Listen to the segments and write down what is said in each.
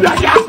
Yeah, yeah.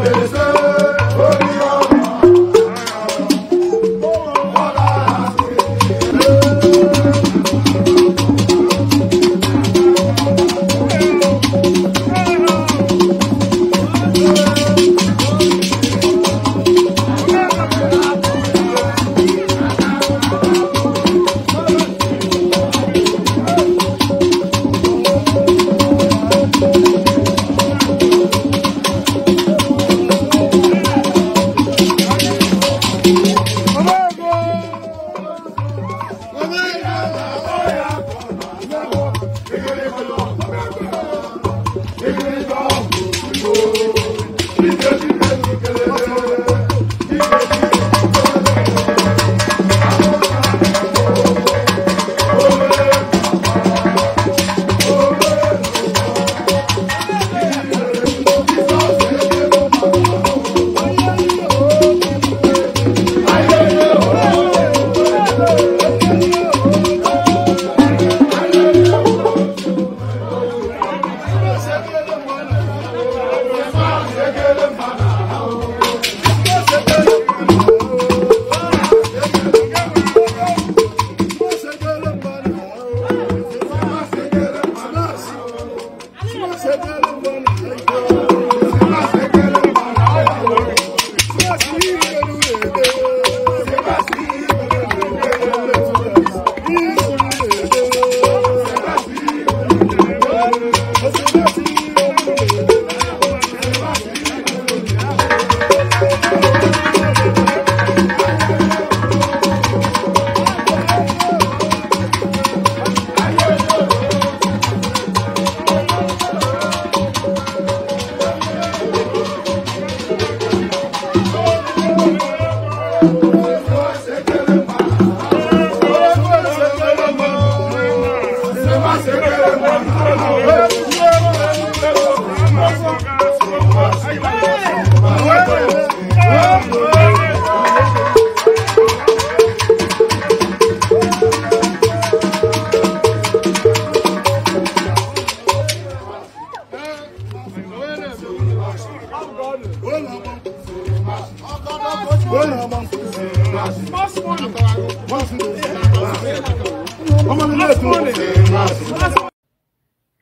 Obedece.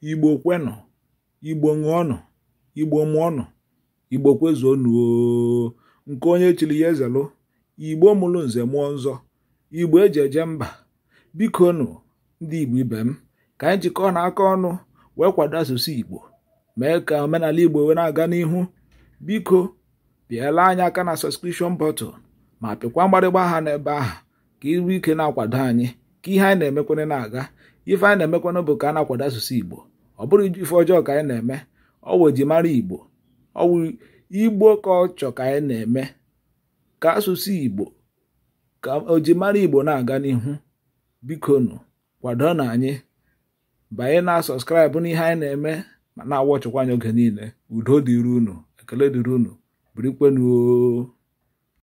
igbo kwenụ igbo ṅụọnụ igbo mụọnụ igbo kwezuonụ nke onye chiri ya ezelụ igbo mụrụ nze mụọ nzọ igbo eji eje mba bikonụ ndị igbo ibe m ka anyị jikọ na aka ọnụ wee kwado asụsụ igbo mee ka omenala igbo wee na-aga n'ihu biko pịala anyị aka na sọskripshọn bọtụl ma pịkwa mgbarịgba aha n'ebe ahụ ka iru ike na-akwado anyị ka ihe anyị na-emekwana na-aga ife anyị na-emekwana bụ ka a na-akwado asụsụ igbo ọ bụrụ ife ọjọọ ka anyị na-eme ọwụ ejimara igbo ọwụ igbo ka ọ ka anyị na-eme ka asụsụ igbo ka ojimara igbo na-aga n'ihu bikonu kwado na anyị banye na sọskraịbụ n'ihe anyị na-eme ma na ọchọkwa anyị oge niile udo dịrị unu ekele dịrị unu birikwenuo